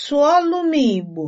Sụọlụ m Igbo!